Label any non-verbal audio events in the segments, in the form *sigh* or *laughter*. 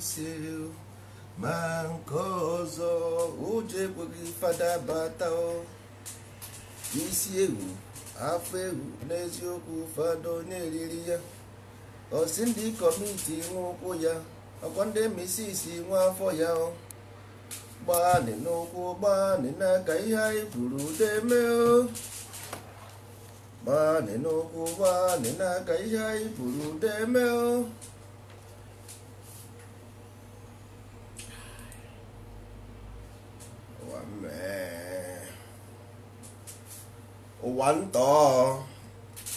venceu ma nke ọzọ ụjọ ekweghị fada bata isi ewu afọ ewu n'eziokwu fado na-eriri ya osi ndị kọmiti ụkwụ ya ọkwa ndị misisi nwa afọ ya gbaanị n'ụkwụ gbaanị n'aka ihe anyị kwuru ude mee gbaanị n'ụkwụ gbaanị n'aka ihe anyị kwuru ude mee ụwa ntọọ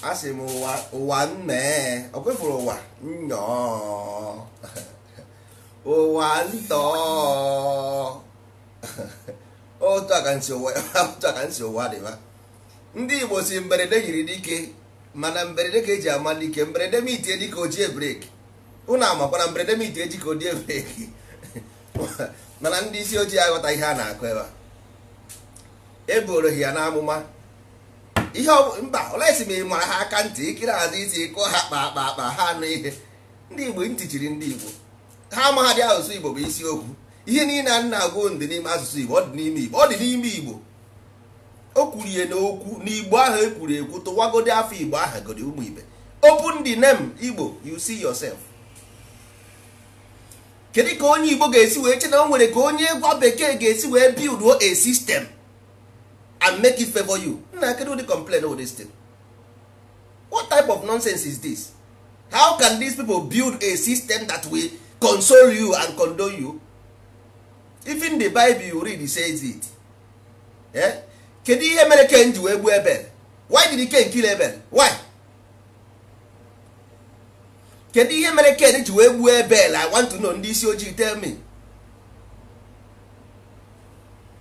asị m ụwa ụwa mmee ọ ụwa nnọọ *laughs* ụwa ntọọ *laughs* otu aka nsi ụwa otu aka ndị Igbo si mberede yiri dike mana mberede ka eji ama dike mberede m itie dike ojie breki ụnụ amakwana mberede m itie dike ojie breki *laughs* mana ndị isi ojii aghọta ihe a na-akụ ebe a eboro ya n'amụma ihe mba olesi ma ị mara ha aka ntị ikiri azụ isi kụọ ha kpa akpa akpa ha anụ ihe ndị igbo ntị chiri ndị igbo ha amaghadị asụsụ igbo bụ isiokwu ihe niile a na-agụ ndị n'ime asụsụ igbo ọ dị n'ime igbo ọ dị n'ime igbo o kwurie n'okwu n'igbo ahụ ekwuru ekwu tụwagodi afọ igbo ahụ godi ụmụ ibe open the name igbo you see yourself kedu ka onye igbo ga-esi wee che na o nwere ka onye gwa bekee ga-esi wee build a system and make it favor you nna kedu di complain o this thing what type of nonsense is this how can these people build a system that will console you and condone you even the bible you read says it eh? kedu ihe mere ken ji wee gbuo ebel why did ken kill ebel why kedu ihe mere ken ji wee gbuo ebel i want to know ndị isi ojii tell me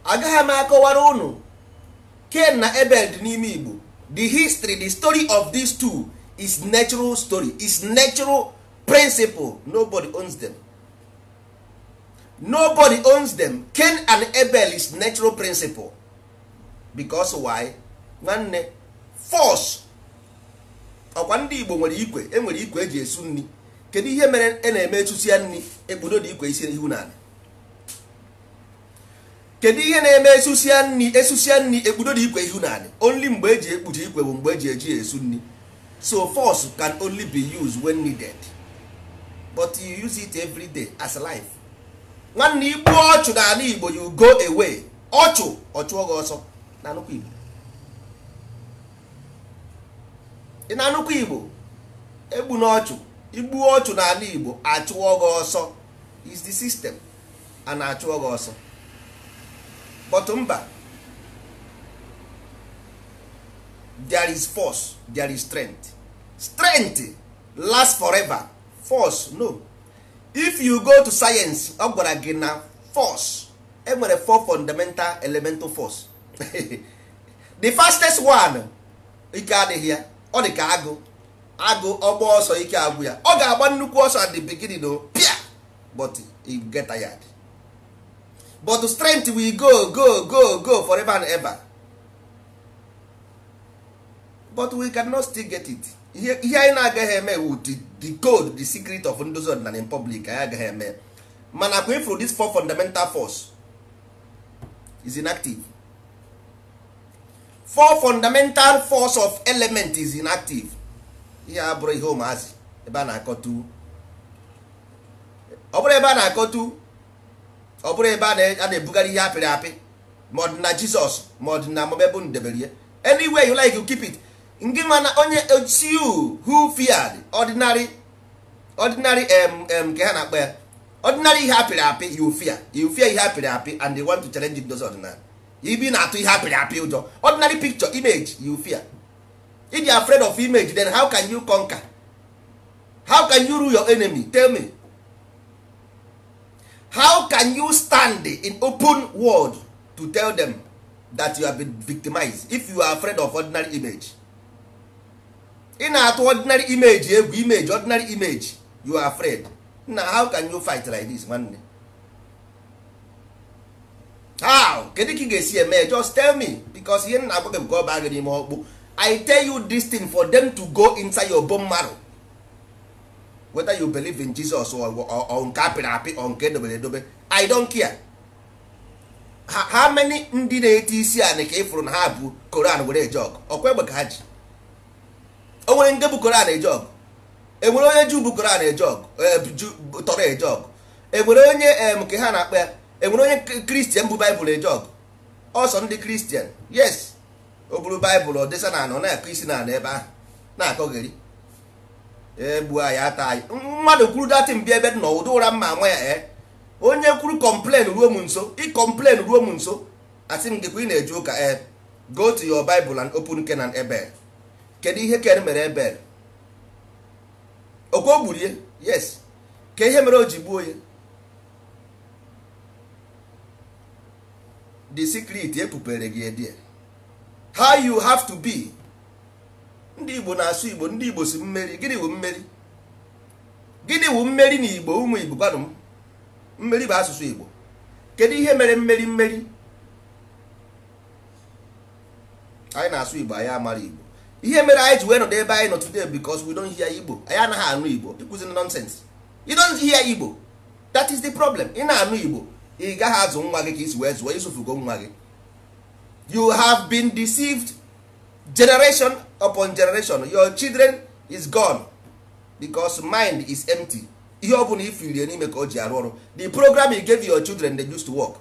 agaghị m akọwara ụnụ ken na ebel dị n'ime Igbo the history the story of these two is natural story is natural principle nobody owns them nobody owns them ken and ebel is natural principle because why nwanne force ọkwa ndị Igbo nwere ikwe enwere ikwe eji esu nri kedu ihe mere a e na-eme esusia nri ebudo dị ikwe isi ihu n'ala kedu ihe na-eme esusia nri esusia nri ekpudo dị ikwe ihu naanị only mgbe eji ekpuchi ikwe bụ mgbe eji eji esu nri so force can only be used when needed but you use it every day as life nwanne igbu ọchụ na ala igbo you go away ọchụ ọchụọ gị ọsọ igbo ị na anụkwa igbo egbu na ọchụ igbu ọchụ na ala igbo achụọ gị ọsọ is the system a na-achụọ gị ọsọ but mba there is force there is strength strength last forever force no if you go to science ọ gwara gị na force enwere four fundamental elemental force *laughs* the fastest one ike adịghị ya ọ dị ka agụ agụ ọgba ọsọ ike agwụ ya ọ ga-agba nnukwu ọsọ at the beginning o pia but you get tired but strength will go go go go forever and ever but we cannot still get it ihe anyị na-agaghị eme wu the code the secret of ndozi ọdịnala in public anyị agaghị eme mana kwe ifru this four fundamental force is inactive four fundamental force of element is inactive ihe a bụrụ ihe ụmụazị ebe a na-akọtu ọ bụrụ ebe a na-akọtu ọ bụrụ ebe a na-ebugharị ihe apịrị apị ma ọ dị na jizọs ma ọ dị na amụma ebe unu debere ihe you like you keep it ndị mana onye you who feared ordinary ordinary um, ka ha na-akpọ ya ordinary ihe apịrị apị you fear you fear ihe apịrị apị and they want to challenge it those ordinary ibi na-atụ ihe apịrị apị ụjọ ordinary picture image you fear if you are afraid of image then how can you conquer how can you rule your enemy tell me how can you stand in open world to tell them that you have been victimized if you are afraid of ordinary image ị na-atụ ordinary image egwu eh, image ordinary image you are afraid na how can you fight like this nwanne how kedu ka ị ga-esi eme just tell me because ihe nna agwa gị bụ ka ọ baa gị n'ime ọkpụ i tell you this thing for them to go inside your bone marrow whether you believe in Jesus or or nke apịrị apị or nke edobere edobe I don't care how many ndị na-eti isi anị ka ịfụrụ na ha bụ Koran were eje ọgụ ọkwa egbe ka ha ji o nwere nde bụ Koran eje enwere onye ju bụ Koran eje ọgụ e, tọrọ eje enwere onye nke ha na-akpa ya enwere onye kristian bụ baịbụl eje ọgụ ọsọ ndị kristian yes o bụrụ baịbụl ọ dịsa na anọ na-akụ isi na ebe ahụ na-akọgheri egbu anyị ata anyị mmadụ kwuru datị bịa ebe dị n'ụdị ụra mma nwe ya e onye kwuru kọmplen ruo m nso ị ruo m nso asị m gịkwa ị na-eji ụka e go to your bible and open Kenan Ebel kedu ihe ken mere Ebel okwe o gburie yes ka ihe mere o ji gbuo ya the secret ekpupere gị edie how you have to be ndị igbo na-asụ igbo ndị igbo si mmeri gịnị wụ mmeri gịnị wụ mmeri na igbo ụmụ igbo gwanụ m mmeri bụ asụsụ igbo kedu ihe mere mmeri mmeri anyị na-asụ igbo anyị amara igbo ihe mere anyị ji wee nọdụ ebe anyị nọ today because we don't hear igbo anyị anaghị anụ igbo ịkụziri nonsense you don't hear igbo that is the problem ị na-anụ igbo ị gaghị azụ nwa gị ka isi wee zụọ isufugo nwa gị you have been deceived generation upon generation your children is gone Becos mind is empty ihe ọ bụla ifilie n'ime ka o ji arụ ọrụ the program you gave your children they used to work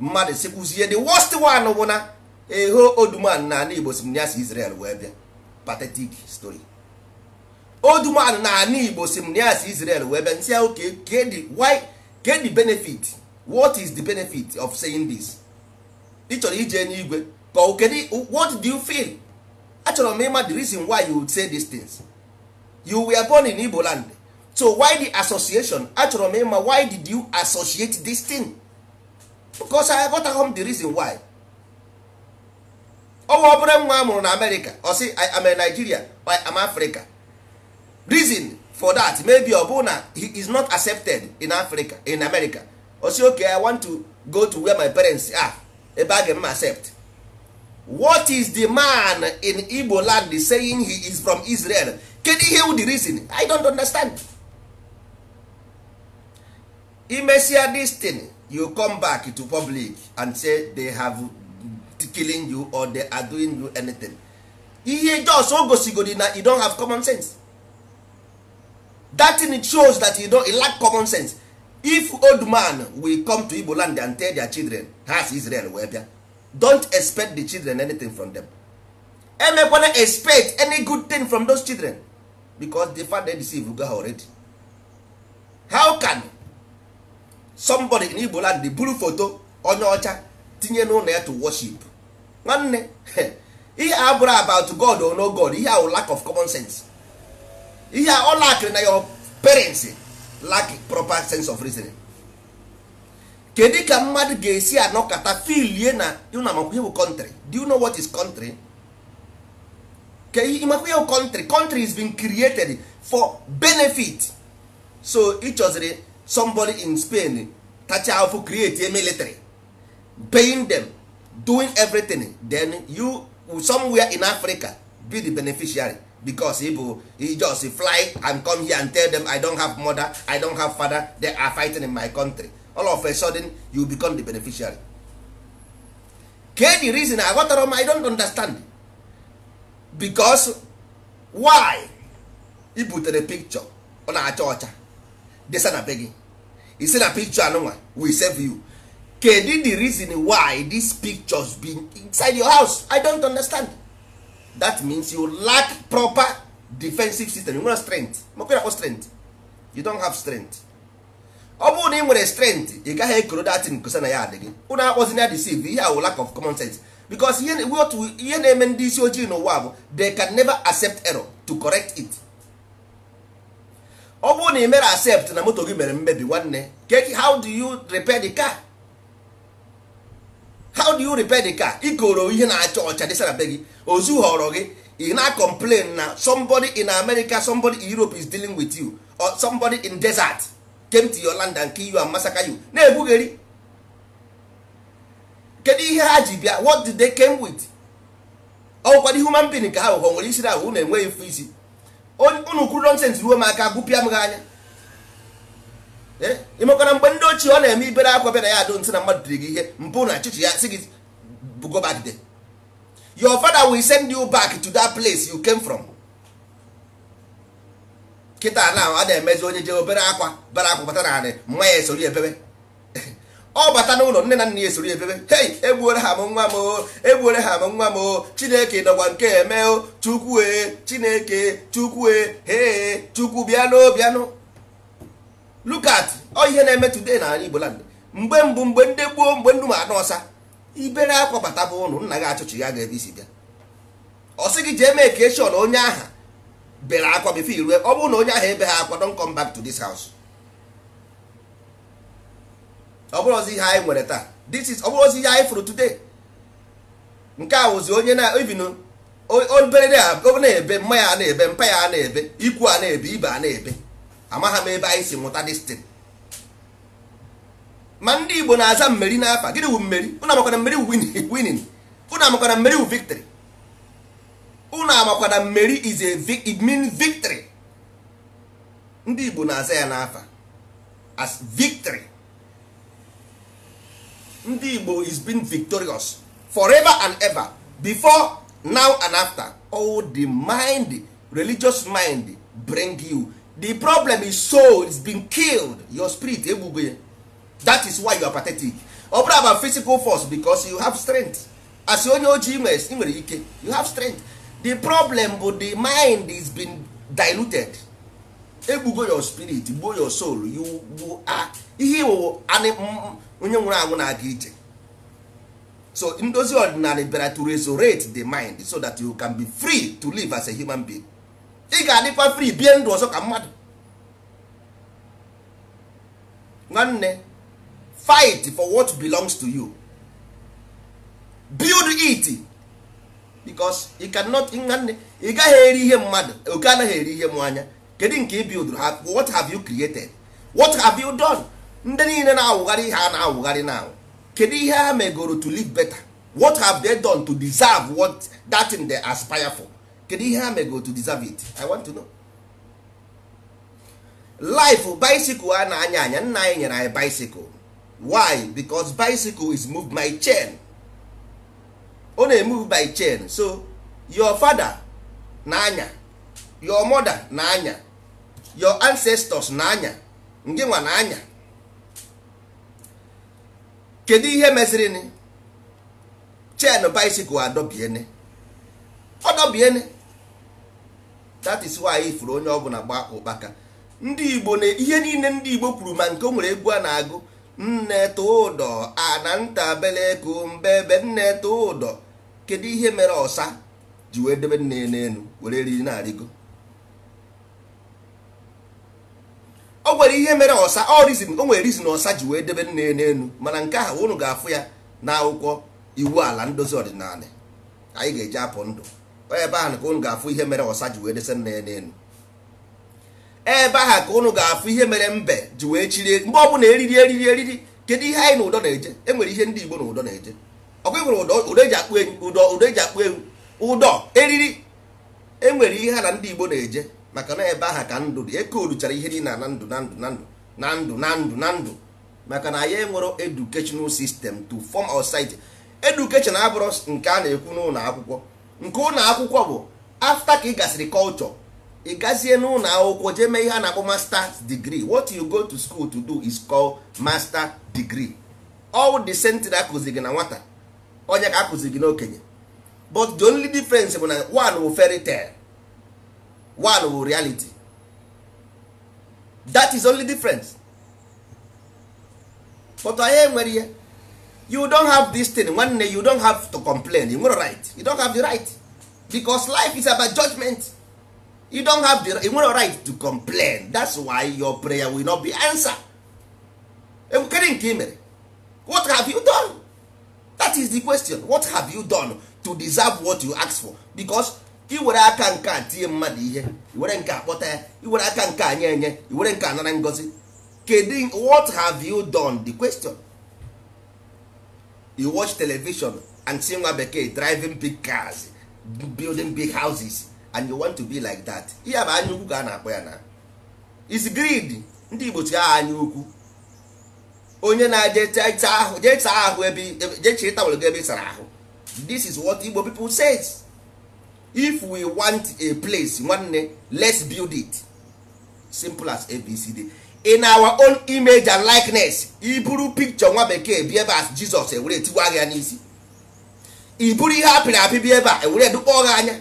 mmadụ sikwuzie the worst one bụ na eho oduman na ala igbo si Israel wee bịa pathetic story oduman na ala igbo si Israel wee bịa nsị ahụ get the benefit what is the benefit of saying this ị chọrọ ije n'igwe kedu what do you feel achọrọ m ịma the reason why you say these things you were born in Igbo land so why the association achọrọ m ịma why did you associate this thing because I got home the reason why ọnwa obere nwa a mụrụ na America i am a Nigeria or am Africa reason for that maybe ọ bụ na he is not accepted in Africa in America ọ okay I want to go to where my parents are ebe a ga-eme accept what is the man in igbo land saying he is from israel kedu ihe wụ the reason i don't understand imesia this thing you come back to public and say they have killing you or they are doing you anything ihe jos o gosigodi na you don't have common sense that thing shows that you don't lack common sense if old man will come to igbo land and tell their children ha israel wee bịa don't expect the children anything from them emekwana expect any good thing from those children because the father deceive go ha already how can somebody in igbo land buru foto onye ọcha tinye n'ụlọ ya to worship nwanne *laughs* ihe a bụrụ about god or no god ihe ahụ lack of common sense ihe a ọ na your parents lack proper sense of reasoning kedu ka mmadụ ga-esi anọkọta filie na ihe bụ country do you know what is country ka ịmakwa bụ country country is been created for benefit so ịchọziri somebody in spain tacha afụ create a military paying them doing everything then you somewhere in africa be the beneficiary because if you just fly and come here and tell them i don have mother i don have father they are fighting in my country all of a sudden you become the beneficiary ka reason aghọtara m i don't understand because why i butere picture ọ na-acha ọcha desa na be gị isi na picture anụnwa we save you kedu the reason why these pictures be inside your house i don't understand that means you lack proper defensive system you nwere strength mokwe na strength you don't have strength ọ bụrụ na ị nwere strength ị gaghị ekoro datin kosa na ya adịghị ụnụ akpọzina deceive ihe awụ lack of common sense because ihe na-eme ndị isi ojii n'ụwa bụ they can never accept error to correct it ọ bụrụ na ị mere accept na moto gị mere mmebi nwanne how do you repair the car how do you repair the car ikoro ihe na-acha ọcha dịsara be gị ozu họrọ gị ị na-complain na somebody in America somebody in Europe is dealing with you or somebody in desert came to your land and kill you na-ebugheri kedu ihe ha ji bịa what did they came with ọgwụkwado human being ka ha wụkọ nwere isiri ahụ unu enweghị mfe isi unu kwuru nonsens ruo m aka gụpịa m gị anya eh? ịmekwana mgbe ndị ochie ọ na-eme ibere akwa bịara ya adụ nsị na mmadụ dịrị gị ihe mpụ na achịchị ya si gị go back there your father will send you back to that place you came from. kịta na a na-emezi onye je obere akwa bara akwa bata na anị mma ya esori ebebe ọ *laughs* bata n'ụlọ nne na nna ya esori ebebe hei egbuore ha m nwa m o egbuore ha m nwa m o chineke nọkwa nke eme o chukwu e chineke chukwu e hee chukwu bịanụ bịanụ lukat ọ ihe na-eme today na igbo landị mgbe mbụ mgbe ndị gboo mgbe nnu ma anụ ọsa ibere akwa bata bụ ụlọ nna gị achụchi ya ga-ebe isi bịa ọ sị gị jee mee ka eshọn onye aha bere akwa bifo irue ọ bụrụ na onye ahụ ebe ha akwa don come back to this house ọ bụrụ ozi ihe anyị nwere taa this is ọ bụrụ ozi ihe anyị fụrụ today nke a wụzi onye na ibinu obere na-ebe mma ya na-ebe mpa ya na-ebe ikwu a na-ebe ibe a na-ebe amagha m ebe anyị si nwụta destin ma ndị Igbo na-aza mmeri n'afa gịnị wu mmeri ụnụ amakwana mmeri wu winin ụnụ amakwana mmeri wu victory na amakwa na mmeri is a it means victory ndị Igbo na-aza ya n'afa as victory ndị Igbo is been victorious forever and ever before now and after all oh, the mind religious mind bring you the problem is soul is been killed your spirit egbugbo that is why you are pathetic ọ bụrụ about physical force because you have strength as onye ojii nwere ike you have strength the problem bụ the mind is been diluted egbugo your spirit gbuo your soul you ihe iwu mm, mm, onye nwụrụ anwụ na-aga ije so ndozi ọdịnala bịara to resurrect the mind so that you can be free to live as a human being ị ga-adịkwa free bie ndụ ọzọ ka mmadụ nwanne fight for what belongs to you build it because ị cannot nwanne ị gaghị eri ihe mmadụ oke anaghị eri ihe m anya kedu nke ị build what have you created what have you done ndị niile na-awụgharị ihe a na-awụgharị na awụ kedu ihe ha megoro to live better what have they done to deserve what that thing they aspire for kedu ihe ha megoro to deserve it i want to know life bicycle a na-anya anya nna anyị nyere anyị bicycle why because bicycle is moved my chain ọ na by chain so your father na-anya your mother na-anya your ancestors na-anya ndị nwa na-anya kedu ihe ni chain bicycle adọbiene ọdọbiene that is why ifuru onye ọbụla gba ụkpaka ndị igbo na ihe niile ndị igbo kwuru ma nke o nwere egwu a na-agụ nne tụdọ ana mbe mbebe nne udo. kedu ihe mere ọsa ji wee debe nne n'elu were eriri na-arịgo Ọ nwere ihe mere ọsa ọ rizin o nwere rizin ọsa ji wee debe nne n'elu mana nke ahụ ụnụ ga-afụ ya na akwụkwọ iwu ala ndozi ọdịnala anyị ga-eji apụ ndụ ebe ahụ ka ụnụ ga-afụ ihe mere ọsa ji wee dese nne n'elu ebe ahụ ka ụnụ ga-afụ ihe mere mbe ji wee chirie mgbe ọ bụla eriri eriri eriri kedu ihe anyị na ụdọ na-eje enwere ihe ndị Igbo na ụdọ na-eje ọkwa nwere ụdọ eji akpụ ewu ụdọ ụdọ akpụ ewu ụdọ eriri enwere ihe ha na ndị Igbo na-eje maka na ebe aha ka ndụ dị eke oluchara ihe dị na na ndụ na ndụ na ndụ na ndụ na ndụ na ndụ maka na anyị nwere educational sistem to form our society abụrụ nke a na-ekwu n'ụlọ akwụkwọ nke ụlọ akwụkwọ bụ afta ka ị gasịrị kọlchọ ị gazie n'ụlọ akwụkwọ jee mee ihe a na-akpọ master's degree what you go to school to do is called master degree all the sentry gị na nwata onye ka akụziri gị n'okenye but the only difference bụ na one wụ fairy tale one wụ reality that is only difference but anyị enwere ihe you don have this thing nwanne you don have to complain you nwere right you don have the right because life is about judgment you don have the you nwere right to complain that's why your prayer will not be answered enwekere nke i mere what have you done? that is the question what have you done to deserve what you ask for because iwere aka nke a tinye mmadụ ihe iwere nke akpọta ya iwere aka nke anya nye enye iwere nke anara ngozi kedu what have you done the question you watch television and see nwa bekee driving big cars building big houses and you want to be like that ihe bụ anya ukwu ka a na-akpọ ya na is greed ndị igbo chi aha anya ukwu onye na-eje ahụ jee ahụ ebe jee chiri ebe sara ahụ this is what Igbo people says if we want a place nwanne let's build it simple as abcd in our own image and likeness iburu picture nwa bekee bi ebe as Jizọs ewere tiwa gị n'isi iburu ihe apịrị apị bi ebe a ewere dụkpọ gị anya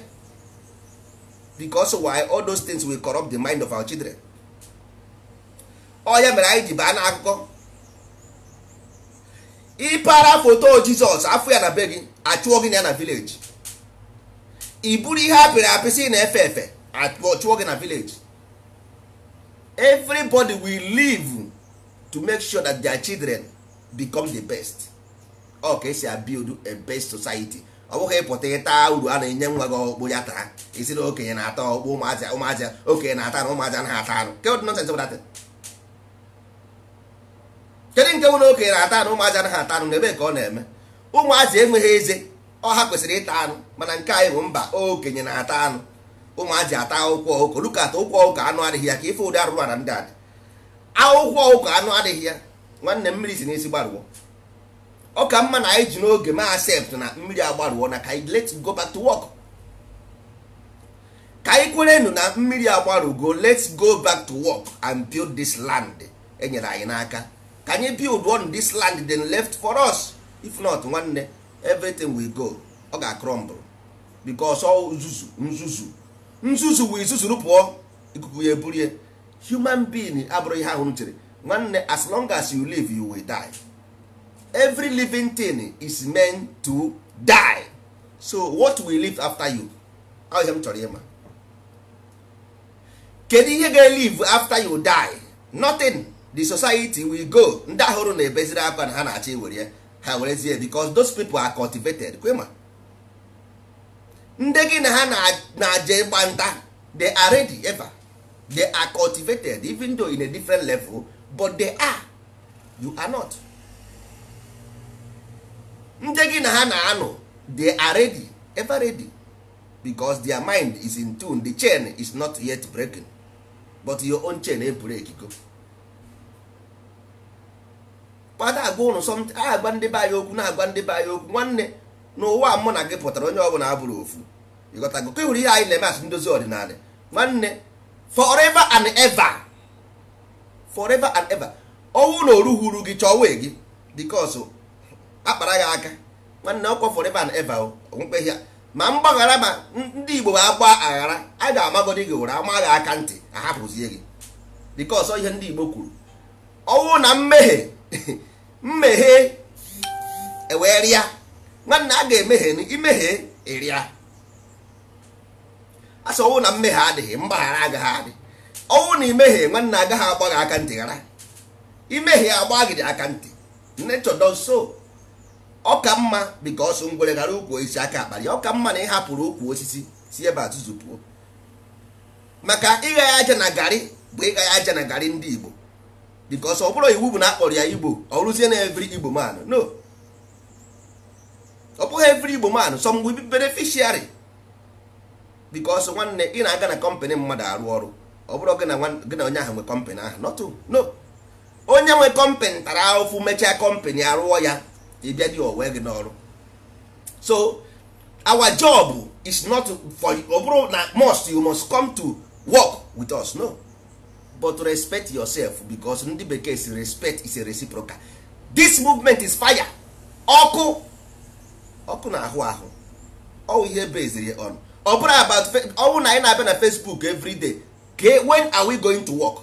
because why all those things will corrupt the mind of our children ọ ya mere anyị ji baa n'akụkọ ịpara foto jizọs afọ ya na be gị achụọ gị na ya na vileji i buru ihe apịrị apịsị na efe efe achụọ gị na vileji everybody will live to make sure that their children become the best ọ ka esi build a best society ọ bụghị ịpụta ịta uru a na-enye nwa gị ọkpụ ya taa isi na okenye na-ata ọkpụ ụmụazị okenye na-ata na ụmụazị anaghị ata arụ ke bụ kedu nke nwere okenye na-ata anụ ụmụazị anaghị ata anụ n'ebe ka ọ na-eme ụmụazị enweghị eze ọha kwesịrị ịta anụ mana nke anyị bụ mba okenye na-ata anụ ụmụazị ata akwụkwọ ụkọ lukata ụkwụ ọkụkọ anụ adịghị ya ka ife ụdị arụrụ na ndị adị akwụkwọ ụkọ anụ adịghị ya nwanne mmiri si n'isi gbarụọ ọ ka mma na anyị ji n'oge ma accept na mmiri agbarụọ na ka anyị let's go back to work ka anyị kwerenu na mmiri agbarụgo let's go back to work and build this land enyere anyị n'aka ka anyị build on this land then left for us if not nwanne everything will go ọ ga crumble because ọ nzuzu nzuzu nzuzu wee zuzuru pụọ ikuku ya eburie human being abụrụ ihe ahụ nwanne as long as you live you will die every living thing is meant to die so what will live after you ọ ihe m chọrọ ịma kedu ihe ga-elive after you die nothing the society will go ndị ahụrụ na-ebeziri akwa na ha na-achọ iwere ha were werezie because those people are cultivated kwema ndị gị na ha na-aje ịgba nta they are ready ever they are cultivated even though in a different level but they are you are not ndị gị na ha na-anụ they are ready ever ready because their mind is in tune the chain is not yet breaking but your own chain e break go kpata agwa ụnụ sọmt agwa ndị be anyị okwu na-agwa ndị be anyị okwu nwanne n'ụwa mụ na gị pụtara onye ọbụla abụrụ ofu ịghọtago ka hụrụ ihe anyị na-eme asụ ndozi ọdịnala nwanne forever and ever forever and ever ọnwụ na oruhuru gị chọwe gị bikos akpara gị aka nwanne ọkwa forever and ever oh, onwekweghị ya ma mgbaghara ma ndị igbo ma agba aghara a ga-amagodi gị ụra amaghị aka ntị ahapụzie gị bikos ihe ndị igbo kwuru ọnwụ oh, na mmehie *laughs* mmeghe ewee rịa nwanne a ga-emehie imehie ịrịa asị na mmehie adịghị mgbaghara agaghị adị ọwụ na imehie nwanne agaghị agba gị aka ntị ghara imehie agba gị aka ntị nature don so ọ ka ngwere gara ukwu osisi aka akpali ọka mma na ịhapụrụ ukwu osisi si ebe atụzụ pụọ maka ịgha aja na garị bụ ịgha aja na garị ndị Igbo because ọ bụrụ iwu bụ na akpọrọ ya igbo ọ rụzie na every igbo man no ọ bụghị every igbo man some will bi beneficiary because nwanne ị na-aga na kọmpanị mmadụ arụ ọrụ ọ bụrụ gị na onye ahụ nwe kọmpanị ahụ not no onye nwe kọmpanị tara ahụfụ mechaa kọmpanị arụọ ya ịbịa dị owe gị n'ọrụ so our job is not for ọ bụrụ na must you must come to work with us no but respect yourself because ndị bekee si respect is a reciprocal this movement is fire ọkụ ọkụ na ahụ ahụ ọwụ ihe beziri on ọ about ọwụ na anyị na-abịa na facebook everyday. day when are we going to work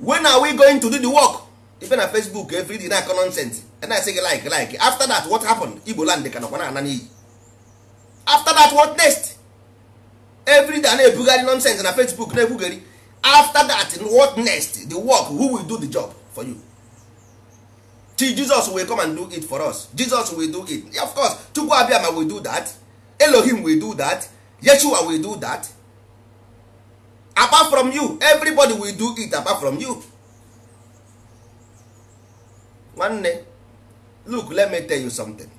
when are we going to do the work ife na facebook everyday day na-akọ nonsense and I say like like after that what happened igbo land ka na-ana n'iyi after that what next every day na-ebugharị nonsense na facebook na-ebugheri after that what next the work who will do the job for you till jesus will come and do it for us jesus will do it yeah, of course chukwu abịama will do that elohim will do that yeshua will do that apart from you everybody will do it apart from you nwanne look let me tell you something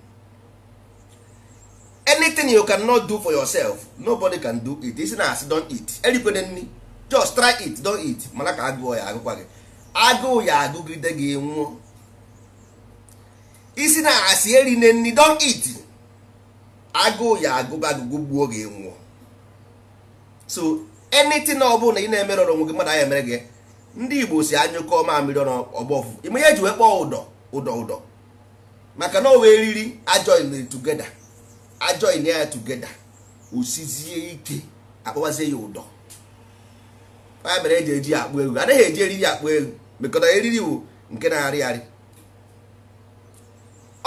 anything you cannot do for yourself nobody can do it isi na asị don eat erikwana just try it don't mana ka agụ ya agụkwa gị agụụ ya agụgide gị nwụọ isi na asị eri na nri don't eat agụụ ya agụgụ agụgụ gbuo gị nwụọ so anything ọ ị na emerụ ọrụ onwe gị mmadụ anya emere gị ndị Igbo si anyụkọ mamiri ọgbọfụ ime ihe eji wee kpọọ ụdọ ụdọ ụdọ maka na o wee riri ajoin tugeda ajoin ya tugeda osizie ike akpọwazie ya ụdọ ya mere eji eji akpụ egwu anaghị eji eriri akpụ egwu mekọta eriri wu nke na-arị arị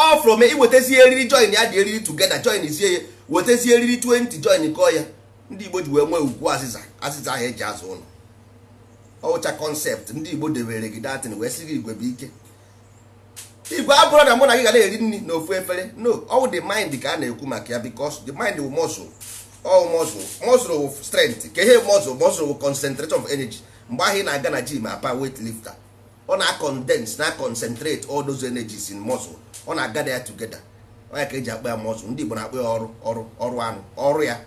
ọ fụrụ ma iwetazie eriri join ya dị eriri tugeda join sie ya wetazie eriri 20 join kọọ ya ndị igbo ji wee nwee ugwu azịza azịza ahụ eji azụ ụlọ ọwụcha kọnsept ndị igbo debere gị datin wee sị gị igwe bụ ike igwe abụrụ na mụ na gị ga na-eri nri na ofu efere no ọ wụ the mind ka a na-ekwu maka ya because the mind wu muscle all oh, muscle muscle bụ strength ka ihe muscle muscle bụ concentration of energy mgbe ahụ ị na-aga na gym apa weight lifter ọ na condense na concentrate all those energies in muscle ọ na-agada ya togeda onye ka eji akpa ya muscle ndị Igbo na-akpa ya ọrụ ọrụ ọrụ anụ ọrụ ya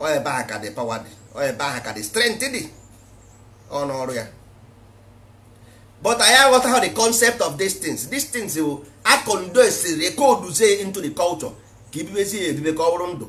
ọ ebe ahụ ka dị power dị ọ ebe ahụ ka dị strength dị ọ na ọrụ ya but anyị aghọtaghị the concept of these things these things bụ akondensiri ekoduzie into the culture ka ibibezie ya ebibe ka ọ bụrụ ndụ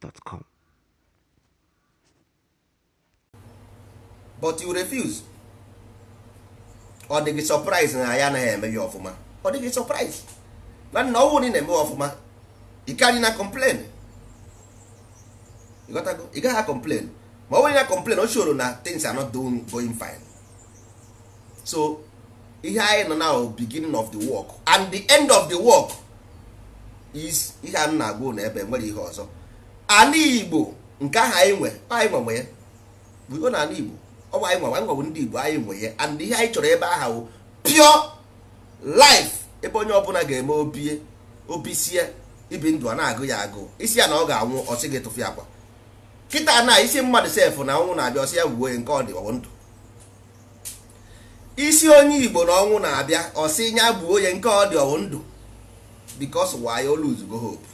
gmail.com. But you refuse. Ọ dịghị surprise na ya anaghị eme ya ọfụma. Ọ dịghị surprise. Na nna ọnwụ na eme ọfụma. Ị gaghị na complain. Ị gaghị complain. Ma ọ bụrụ na complain o shoro na things are not doing going fine. So ihe anyị nọ na beginning of the work and the end of the work is ihe a na-agwa na ebe nwere ihe ọzọ. ala igbo nke ahụ anyị nwe anyị nwe nwe ya buo na ala igbo ọ bụ anyị nwe anyị bụ ndị igbo anyị nwe ya and ihe anyị chọrọ ebe aha wụ pure life ebe onye ọbụla ga-eme obie obisie ibi ndụ a na-agụ ya agụ isi ya na ọ ga-anwụ ọsị gị tụfu akwa kịta na isi mmadụ sef na ọnwụ na-abịa ọsị ya wuo nke ọ dị ọwụ ndụ isi onye igbo na ọnwụ na-abịa ọsị ya gbuo ya nke ọ dị ọwụ ndụ because why oluzugo hope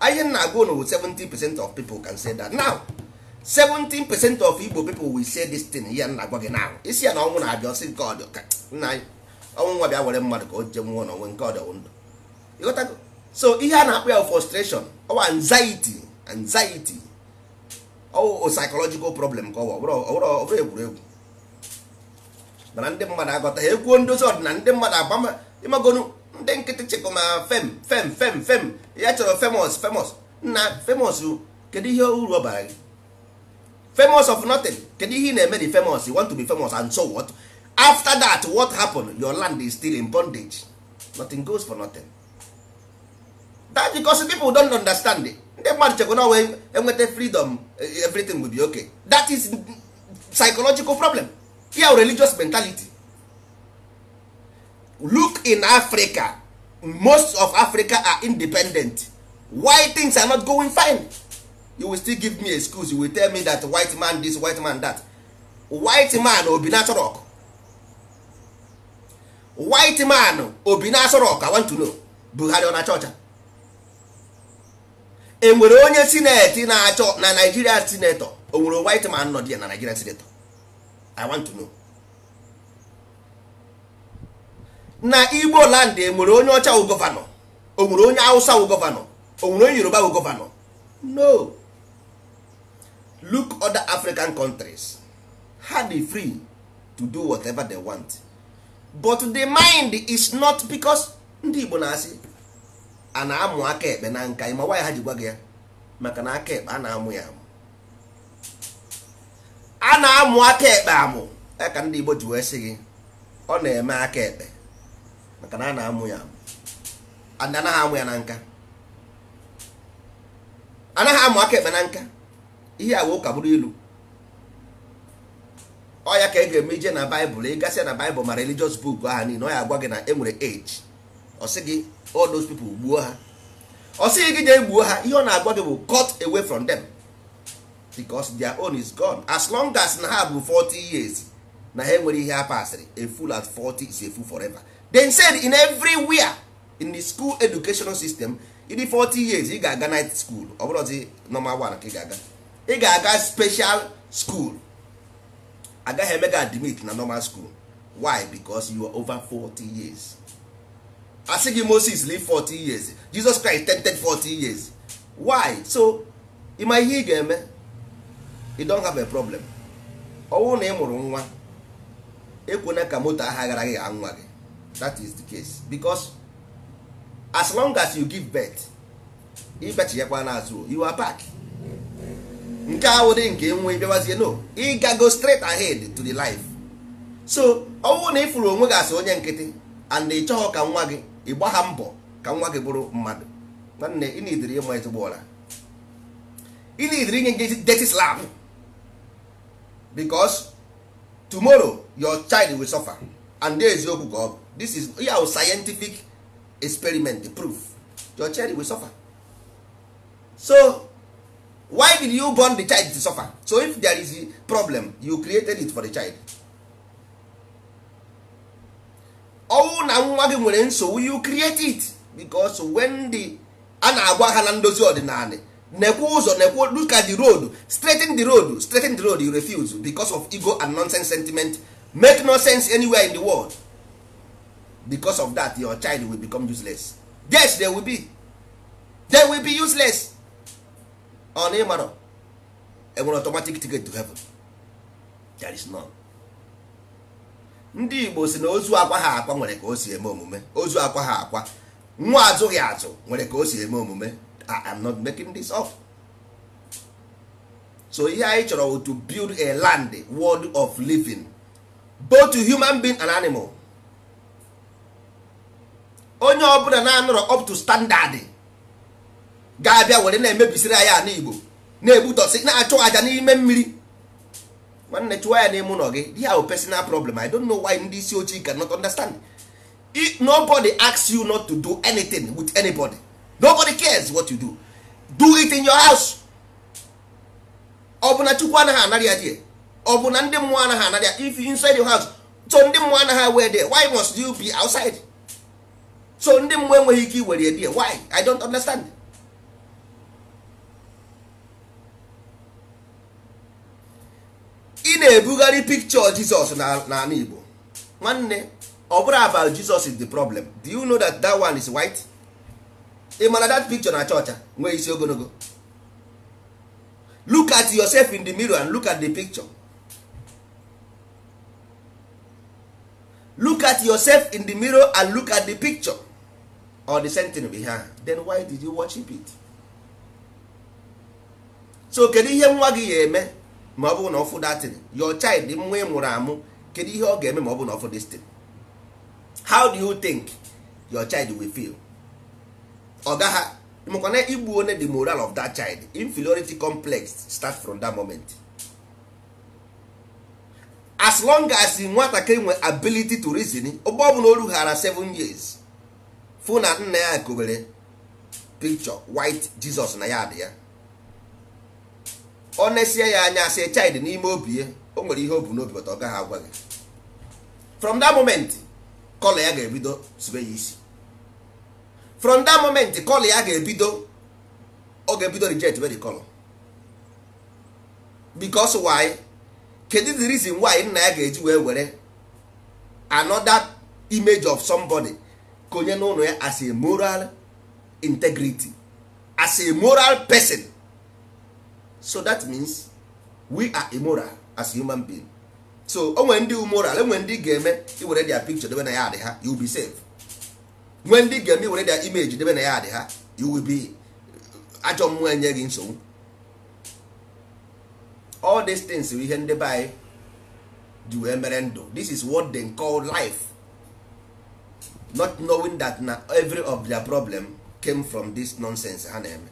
anyị na-agwa unu 70 percent of people can say that now 17 percent of Igbo people will say this thing ihe na-agwa gị now isi ya na ọnwụ na-abịa ọsị nke ọdị nna anyị ọnwụ nwa bịa were mmadụ ka o je nwụọ n'onwe nke ọdị ndụ ịghọtago so ihe a na-akpọ ya frustration ọwa anxiety anxiety ọwụ psychological problem ka ọ bụrụ egwuregwu mana ndị mmadụ agọta ha ekwuo ndozi ọdịna ndị mmadụ agbama ịmagonu ndị nkịtị chịkụ ma fem fem fem fem ya chọrọ famous famous na famous kedu ihe uru ọ bara gị famous of nothing kedu ihe ị na-eme di famous you want to be famous and so what after that what happened your land is still in bondage nothing goes for nothing that because people don't understand it ndị mmadụ chekwa na wee enweta freedom everything will be okay that is psychological problem ya religious mentality look in africa most of africa are independent why things are not going fine you will still give me excuse you will tell me that white man this white man that white man obi rock white man obi rock i want to know buhari ọ na E nwere enwere onye sineti na-achọ na nigeria senator onwere white man nọ dị na nigeria senator i want to know na igbo land enwere onye ọcha wụ gọvanọ o nwere onye awụsa wụ gọvanọ o nwere onye yoruba wụ gọvanọ no look other african countries ha dị free to do whatever they want but the mind is not because ndị igbo na-asị a na-amụ aka ekpe na nka ịma nwaanyị ha ji gwa ya maka na aka ekpe a na-amụ ya amụ a na-amụ aka ekpe amụ ya ka ndị igbo ji wee sị gị ọ na-eme aka ekpe maka na a na-amụ ya anaghị amụ ya na nka anaghị amụ aka ekpe na nka ihe a wee ụka bụrụ ilu ọ ya ka ị ga-eme ije na baịbụl ị ịgasị na baịbụl ma religious buku aha niile ọ ya agwa gị na e nwere age ọ sị gị all those people gbuo ha ọ sị gị jee gbuo ha ihe ọ na-agwa gị bụ cut away from them because their own is gone as long as na ha bụ 40 years na ha enwere ihe ha pasịrị a full at 40 is a full forever. they said in everywhere in the school educational system ịdị 40 years ị ga-aga night school ọ bụrụzi normal one ka ị ga-aga ị ga-aga special school agaghị emega gị admit na normal school why because you are over 40 years asị gị Moses live 40 years Jesus Christ tented 40 years why so ịma ihe ị ga-eme you don't have a problem ọnwụ na ị mụrụ nwa ekwena ka moto ahụ aghara gị anwa gị that is the case because as long as you give birth ibechiyekwa n'azụ you are back nke awụdị nke nwe bịawazie no ịgago straight ahead to the life so ọ bụrụ na ị onwe gị asị onye nkịtị and ị chọghọ ka nwa gị ị gbagha mbọ ka nwa gị bụrụ mmadụ nwanne ị na-ediri ịma ezigbo ụra ị na-ediri inye gị dirty slam because tomorrow your child will suffer and eziokwu ka ọ bụ this is ihe scientific experiment proof your child will suffer so why did you born the child to suffer so if there is a problem you created it for the child ọnwụ na nwa gị nwere nsogbu you create it because when the a na-agwa ha na ndozi ọdịnala nekwe ụzọ nekwe look at the road straighten the road straighten the road you refuse because of ego and nonsense sentiment make no sense anywhere in the world because of that your child will become useless yes they will be they will be useless on ịmara enwere automatic ticket to heaven there is none ndị igbo si na ozu akwa ha akwa nwere ka o si eme omume ozu akwa ha akwa nwa azụghị azụ nwere ka o si eme omume I am not making this up so ihe anyị chọrọ to build a land world of living both to human being and animal onye ọbụla na-anọrọ up to standard ga-abịa were na-emebisiri anyị na igbo na-egbutọsị na-achụ aja n'ime mmiri nwanne chụwa ya n'ime ụlọ gị di ya personal problem i don't know why ndị isi ojii cannot understand If nobody asks you not to do anything with anybody nobody cares what you do do it in your house ọbụna na chukwu anaghị anara ya die ọ na ndị mmụọ anaghị anara ya if you inside your house so ndị mmụọ anaghị wee there why must you be outside so ndị mmụọ enweghị ike iwere ebi why i don't understand ị na-ebugharị picture jizọs n'ala igbo nwanne ọ bụrụ about Jizọs is the problem do you know that that one is white ị mara that picture na chọcha nwee isi ogologo look at yourself in the mirror and look at the picture look at yourself in the mirror and look at the picture or the same thing be her then why did you worship it so kedu ihe nwa gị ga-eme ma ọ bụrụ na ọfụ datin your child nwa ị mụrụ amụ kedu ihe ọ ga-eme ma ọ bụ na ọfụ destin how do you think your child will feel ọ gaghị mekwana igbu one the moral of that child inferiority complex start from that moment as long as nwatakịrị nwe ability to reason ụgbọ ọ bụla o rughara 7 years fụ na nna ya gowere pikchọ white jizọs na ya dị ya ọ na-esie ya anya sị child n'ime obi ya o nwere ihe o bu n'obi bata ọ gaghị agwa gị from that moment kọla ya ga-ebido zube ya isi from that moment kọla ya ga-ebido ọ ga-ebido jet where the color because why kedu the reason why nna ya ga-eji wee were another image of somebody konye n'ụlọ ya as a moral integrity as a moral person so that means we are immoral as human being so o nwere ndị moral enwe ndị ga-eme iwere their picture debe na ya adị ha you be safe nwee ndị ga-eme iwere their image debe na ya adị ha you will be ajọ mmụọ enye gị nsogbu all these things bụ ihe ndị be dị ji wee mere ndụ this is what they call life not knowing that na every of their problem came from this nonsense ha na-eme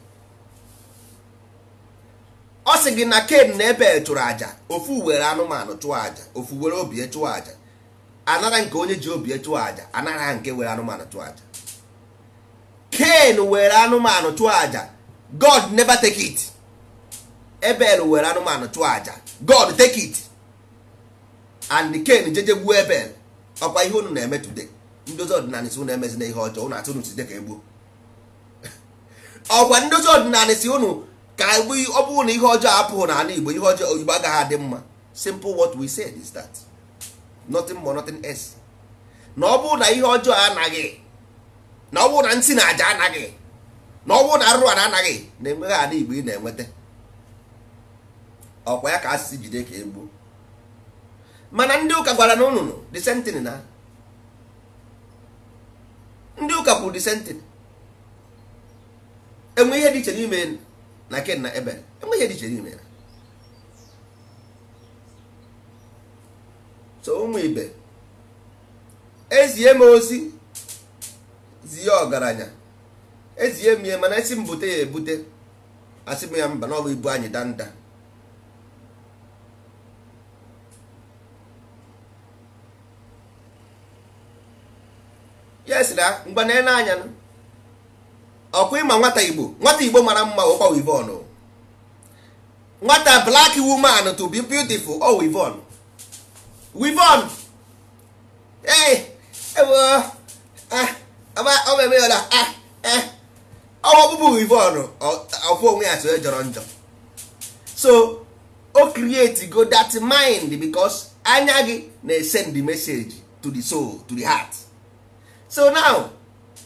ọ sị gị na ken na ebe tụrụ aja ofu were anụmanụ chụọ aja ofu were obi e chụọ aja anara nke onye ji obi e chụọ aja anara nke were anụmanụ chụọ aja ken were anụmanụ chụọ aja god never take it ebel were anụmanụ chụọ aja god take it and ken jeje gbuo ebel ọkwa ihe unu na-eme today ndozi ọdịnala si unu emezina ihe ọjọọ ụnụ atụ unu site ka egbuo *laughs* ọgwa ndozi ọdịnala si unu ka egbu ọ bụrụ na ihe ọjọọ apụghị n'ala igbo ihe ọjọọ oyibo agaghị adị mma simple what we said is that nothing more nothing else na ọ bụrụ na ihe ọjọọ anaghị na ọ bụrụ na ntị na aja anaghị na ọ bụrụ na arụrụ na anaghị na enweghị ala igbo ị na-enweta ọkwa ya ka asịsị jide ka egbuo mana ndị ụka gwara na ụnụnụ the same thing na ndị ụka kwuru the same thing enwe ihe dị iche n'ime na ken na ebel enwe ihe dị iche n'ime ya so ụmụ ibe ezie m ozi zie ọgaranya ezie m ihe mana esi m bute ya ebute asị m ya mba na ọ bụ ibu anyị danda daa na ele anya ọkwa ịma nwata igbo nwata igbo mara mma ọkwa wivon nwata black woman to be beautiful ọ wivon wivon ee ewe eh, eh, eh, ọ eme ya ọwa ọkpụkpụ wivon ọkwa onwe ya tụrụ jọrọ njọ so o create go that mind because anya gị na-esend message to the soul to the heart so now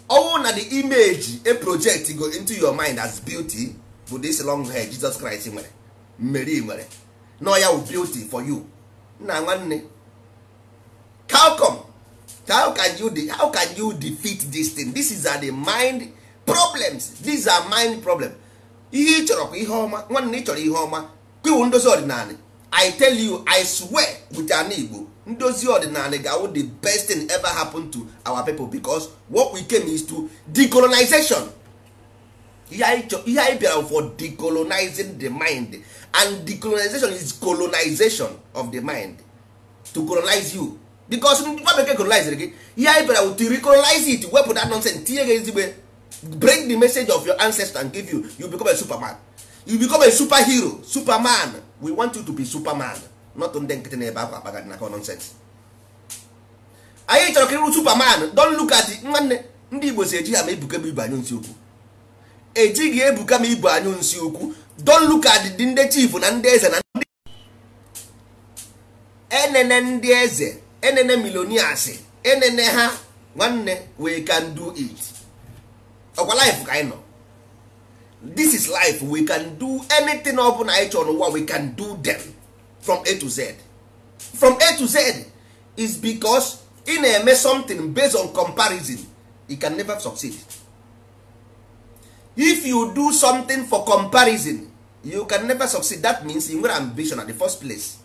ọnwụ na the image a project go into your mind as beauty bụ this long hair Jesus Christ nwere mmeri nwere nọ ya beauty for you nna nwanne how come how can you how can you defeat this thing this is the mind problems these are mind problem ihe ị chọrọ kwa ihe ọma nwanne ị chọrọ ihe ọma kwiwu ndozi ọdịnala i tell you i swear with an igbo ndozi ọdịnala ga the best thing ever happen to our people because what we came is to decolonization ihe anyị bịara for decolonizing the mind and decolonization is colonization of the mind to colonize you because nwa bekee colonizere gị ihe anyị bịara to recolonize it wepụ that nonsense tinye gị ezigbo break the message of your ancestor and give you you become a superman you become a superhero superman we want you to be superman not ndị nkịtị na-ebe akwa akpagadị na nonsense anyị chọrọ ka ịrụ superman don look at nwanne ndị igbo si eji ha ma ebuka m ibu anyụ nsị ukwu ejighị ebuka m ibu anyụ nsi okwu don look at dị ndị chief na ndị eze na ndị enene ndị eze enene milonias enene ha nwanne we can do it ọkwa life ka anyị nọ this is life we can do anything ọ bụla anyị chọrọ n'ụwa we can do them from a to z from a to z is because ị na-eme something based on comparison you can never succeed if you do something for comparison you can never succeed that means you nwere ambition at the first place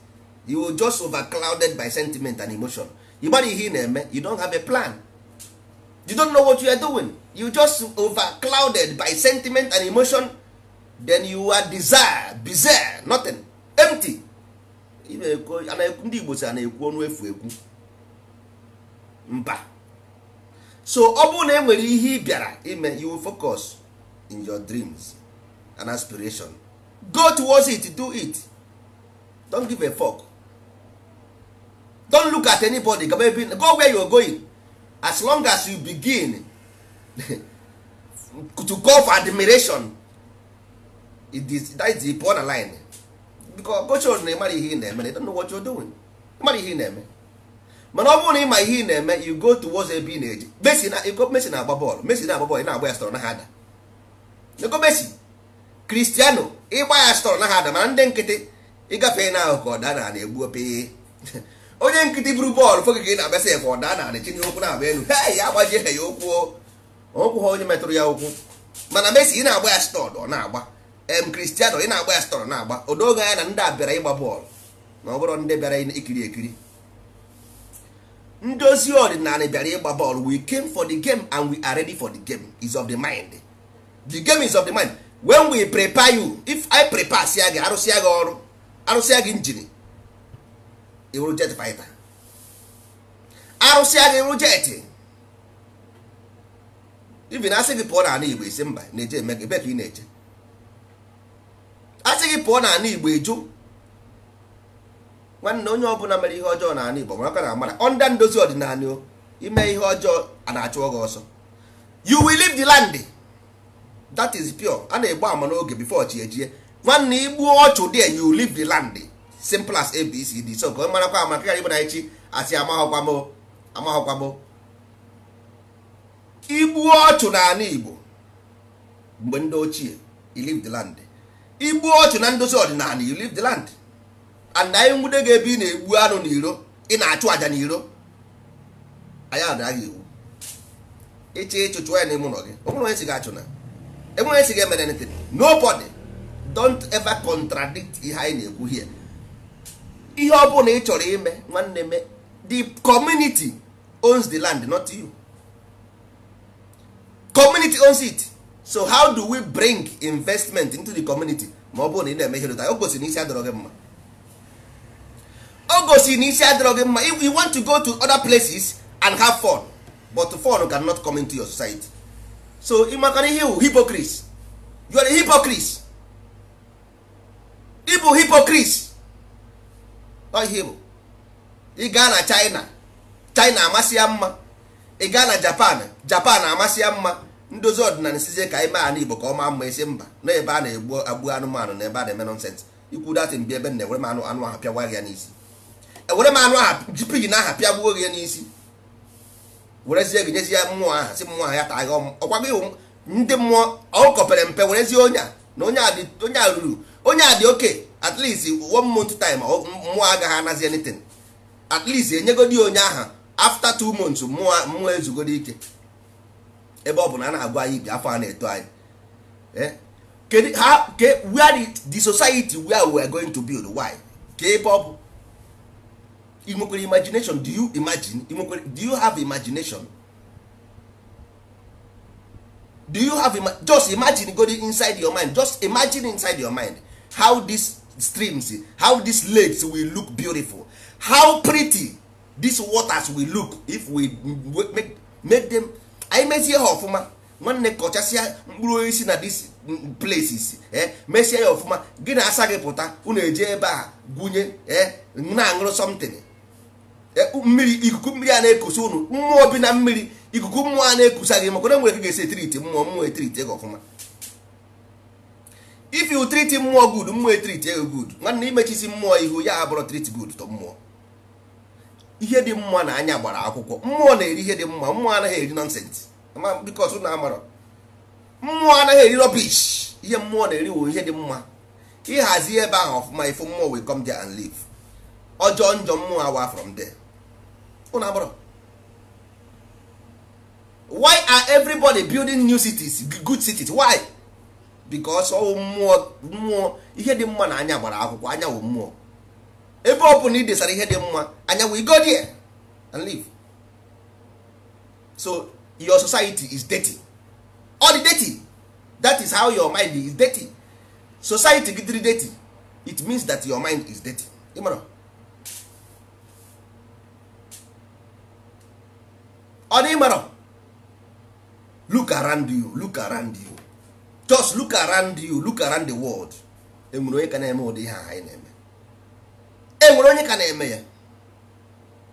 you will just overclouded by sentiment and emotion ịgbara ihe ị na-eme you don't have a plan you don't know what you are doing you just overclouded by sentiment and emotion then you are desire bizarre nothing empty ndị igbo si a na-ekwu ọnụ efu ekwu mba so ọ bụrụ na e nwere ihe ị bịara ime you will focus in your dreams and aspiration go towards it do it don't give a fuck don't look at anybody go where you are going as long as you begin *laughs* to go for admiration it is that is the border line because gochos na ịmara ihe ị na-eme they don't know what you're doing ịmara ihe ị na-eme mana ọ bụrụ na ịma ihe ị na-eme you go towards ebe ị na eji. Messi na na-agba bọọlụ Messi na-agba bọọlụ ị na-agba ya stọrọ na ha ada ego Messi Kristiano ịgba ya stọrọ na ha ada mana ndị nkịtị ịgafe na ahụ ka ọ daa na egbu ope *laughs* onye nkịtị buru bọọlụ foge ka ị na-abịasị efe ọda na chine okwu na-agba elu hei ya agbajie ha ya okwu oh. okwu ha onye metụrụ ya okwu mana Mesi ị na-agba ya stọd ọ na-agba em kristiano ị na-agba ya stọd na-agba odoge anya na ndị a bịara ịgba bọọlụ ma ọ bụrụ ndị bịara ikiri ekiri ndozi ọdịnala bịara ịgba bọọlụ we came for the game and we are ready for the game is of the mind the game is of the mind when we prepare you if I prepare sia gị arụsịa gị ọrụ arụsịa gị injin iwuru jet fighter arụsị aga iwuru jet ibi na asị gị pụọ n'ala igbo isi mba na-eje eme gị ebe ka ị na-eje asị gị pụọ n'ala igbo eju nwanne onye ọbụla mere ihe ọjọọ n'ala igbo mara na amara ọnda ndozi ọdịnala o ime ihe ọjọọ a na-achụ gị ọsọ you will leave the land that is pure a na-egbu ama n'oge before chi ejie nwanne igbuo ọchụ dị you leave the land simple as abcd so ka ọ marakwa amaka ghara ịbụ na echi asị amaghọkwamo amaghọkwamo igbuo ọchụ n'ala igbo mgbe ndị ochie you leave the land igbuo ọchụ na ndozi ọdịnala you leave the land and anyị nwude gị ebe ị na-egbu anụ n'iro ị na-achụ àjà n'iro anyị adịghị iwu ịchị ịchụ chụọ ya n'ime ụlọ gị o onye si gị achụ na enwere onye si gị emere anything nobody don't ever contradict ihe anyị na-ekwu here ihe ọ bụla ị chọrọ ime nwanne me the community owns the land not you community owns it so how do we bring investment into the community ma ọ bụrụ na ị na-eme ihe o gosi na isi adọrọ gị mma o gosi na isi adọrọ gị mma you want to go to other places and have fun but fun cannot come into your society so ị makara ihe wụ you are a hypocrite ịbụ hypocrite ihe bụ ị gaa na china china amasị ya mma ị gaa na japan japan amasị ya mma ndozi ọdịnala sizie ka anyị mee ala igbo ka ọma maa mma esi mba na ebe a na-egbu agbu anụmanụ na ebe a na-eme nọnsensị ikwu datin bi ebe na ewere m anụ anụ ahụ pịagwa ya n'isi ewere m anụ ahụ ji pigin aha pịagbuo gị ya n'isi werezie gị nyezie mmụọ aha si mmụọ aha ya taa gị ọkwa gị ndị mmụọ ọ kọpere mpe werezie onye a na onye a ruru onye a dị oke at least one month time mmụọ agaghị anazi anything at least enyegodi onye aha after two months mmụọ mmụọ ezugoro ike ebe ọ bụ na a na-agwa anyị ibi afọ a na-eto anyị e? ha ke where the society wey we are going to build why ke ebe ọ imagination do you imagine ị do you have imagination do you have ima just imagine godi inside your mind just imagine inside your mind how this streams how these lakes will look beautiful how pretty these waters will look if we make, make them anyị mezie ha ọfụma nwanne kọchasịa mkpụrụ osisi na these places eh mesie ya ọfụma gị na asa gị pụta unu eje ebe a gwunye eh na-aṅụrụ something mmiri ikuku mmiri a na-ekusa unu mmụọ bi na mmiri ikuku mmụọ a na-ekusa gị maka na nwere ka ga-esi etiriti mmụọ mmụọ etiriti gị ọfụma if you treat mmụọ good mmụọ etrit ego good nwanne imechisi mmụọ ihu ya abụrụ treat good to mmụọ ihe dị mma na anya gbara akwụkwọ mmụọ na-eri ihe dị mma mmụọ anaghị eri nonsense because unu amarọ mmụọ anaghị eri rubbish ihe mmụọ na-eri wo ihe dị mma ịhazi ebe ahụ ọfụma ifu mmụọ will come there and live ọjọọ njọ mmụọ awa from there unu amarọ why are everybody building new cities good cities why? because ọwụ mmụọ mmụọ ihe dị mma na anya gbara akwụkwọ anya wụ mmụọ ebe ọ bụla ị desara ihe dị mma anya wụ go there and live so your society is dirty all the dirty that is how your mind is dirty society gị dịrị dirty it means that your mind is dirty mara ọ dị ịmara look around you look around you just look around you look around the world enwere onye ka na-eme ụdị ihe a anyị na-eme enwere onye ka na-eme ya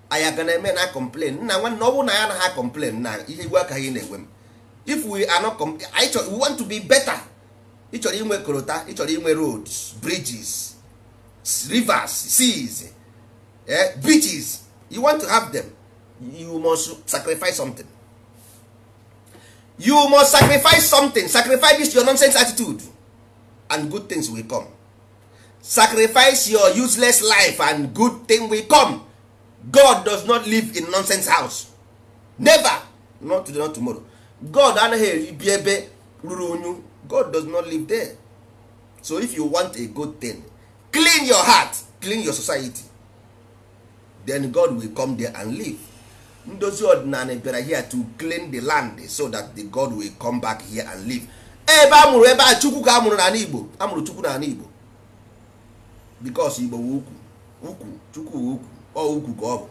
anyị aga na-eme na complain nna nwanne ọ bụrụ na ya ha complain na ihe igwe aka anyị na-enwe m if we are not anyị chọrọ we want to be better ị chọrọ inwe korota ị chọrọ inwe roads bridges rivers seas eh, beaches you want to have them you must sacrifice something you must sacrifice something sacrifice this your nonsense attitude and good things will come sacrifice your useless life and good thing will come god does not live in nonsense house never not today not tomorrow god anaghị eribi ebe ruru unyu god does not live there so if you want a good thing clean your heart clean your society then god will come there and live ndozi ọdịnala bịara here to clean the land so that the god will come back here and live ebe a mụrụ ebe a chukwu ka a mụrụ n'ala igbo a mụrụ chukwu n'ala igbo because igbo wu ukwu ukwu chukwu wu ukwu ọ ukwu ka ọ bụ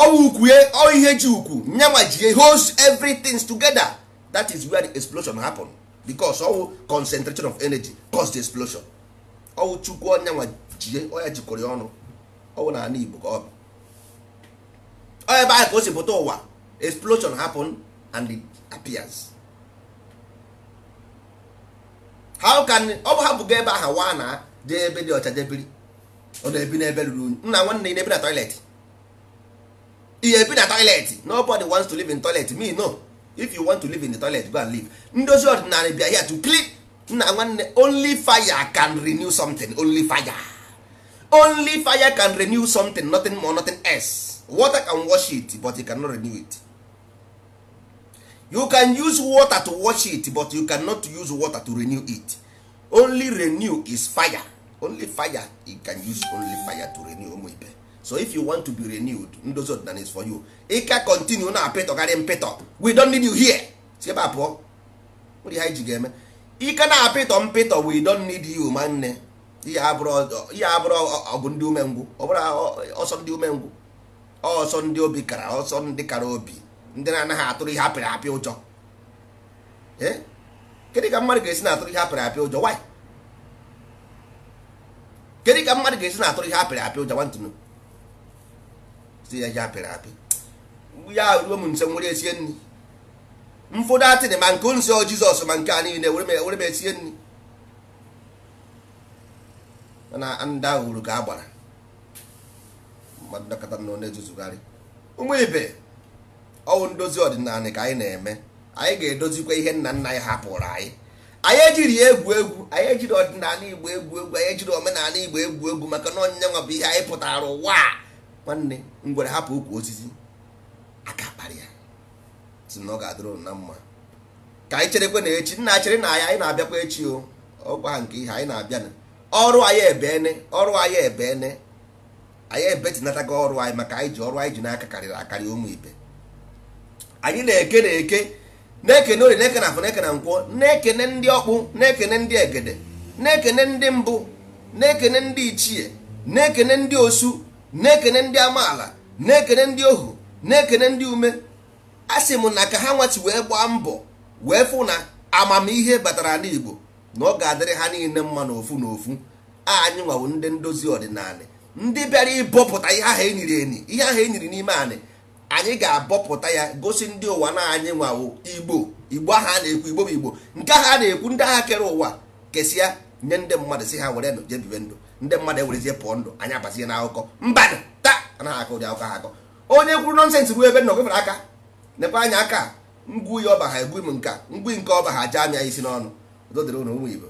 ọ ukwu ye ọ ihe ji ukwu nyanwa ji holds everything together that is where the explosion happen because ọwụ concentration of energy cause the explosion ọwụ chukwu ọnyanwa jie ọ ya jikọrọ ọnụ ọwụ n'ala igbo ka ọ bụ ebe ahụ ka o si pụta ụwa explosion happen and it appears how can ọ bụ hapụgo ebe ahụ waa na jee ebe dị ọcha jebiri ọ na-ebi n'ebe ruru unyi nna nwanne na-ebi na toilet ihe ebi na toilet nobody wants to live in toilet me no if you want to live in the toilet go and live ndozi ọdịnala bịa here to clean nna nwanne only fire can renew something only fire only fire can renew something nothing more nothing else water can wash it but you cannot renew it you can use water to wash it but you cannot use water to renew it only renew is fire only fire you can use only fire to renew ụmụ so if you want to be renewed ndozi ọdịnala is for you ịka continue na apịtọgarị mpịtọ we don't need you here si ebe a pụọ ndị ha ji ga-eme ike na apịtọ mpịtọ we don't need you ma nne ihe abụrụ ọ ndị umengwụ ọ bụrụ ọsọ ndị umengwụ ọsọ ndị obi kara ọsọ ndị kara obi ndị na-anaghị atụrụ ihe apịrị apị ụjọ eh? Kedu ka mmadụ ga-esi na-atụrụ ihe apịrị apị ụjọ wanyị Kedu ka mmadụ ga-esi na-atụrụ ihe apịrị apị ụjọ nwantụnụ si ya ihe apịrị apị ya ruo m nse nwere esie nri mfụdụ atịrị ma nke nso jizọs ma nke a niile were m esie nri mana ndị ahụ uru ka a mmadụ dọkọta na na-ezuzugharị ụmụ ibe ọwụ ndozi ọdịnala ka anyị na-eme anyị ga-edozikwa ihe nna nna anyị hapụrụ anyị anyị ejiri egwu egwu anyị ejiri ọdịnala igbo egwu egwu anyị ejiri omenala igbo egwu egwu maka na onyinye nwa bụ ihe anyị pụtara ụwa nwanne ngwere hapụ ukwu osisi aka kparị ya si na ọ ga-adịrụ na mma ka anyị cherekwe na echi nna chere na anyị anyị na-abịakwa echi o ọgwa nke ihe anyị na-abịa na ọrụ anyị ebene ọrụ anyị ebene anyị ebetinatago ọrụ anyị maka anyị ji ọrụ anyị ji n'aka karịrị akarị ụmụ ibe anyị na-eke na-eke na-ekene ori na-eke na afọ na-eke nkwụ nkwọ na-ekene ndị ọkpụ na-ekene ndị egede na-ekene ndị mbụ na-ekene ndị ichie na-ekene ndị osu na-ekene ndị amaala na-ekene ndị ohu na-ekene ndị ume a sị m na ka ha nwachi wee gbaa mbọ wee fụ na amamihe batara n'Igbo na ọ ga-adịrị ha niile mma n'ofu n'ofu anyị nwawo ndị ndozi ọdịnala ndị bịara ịbọpụta ihe ahụ enyiri enyi ihe ahụ enyiri n'ime anị anyị ga-abọpụta ya gosi ndị ụwa na anyị nwawo igbo igbo aha a na-ekwu igbo bụ igbo nke ahụ a na-ekwu ndị agha kere ụwa kesịa nye ndị mmadụ si ha were jee bibe ndụ ndị mmadụ ewerezie pụọ ndụ anyị abazie n'akụkọ mbadụ taa anaghị akụ ụdị akụkọ ha akọ onye kwuru nọnsensị bụ ebe nnọgụ fere aka nepe anya aka ngwu ya ọba ha egbu m nka ngwu nke ọba ha jee ya isi n'ọnụ dodere ụmụ igbo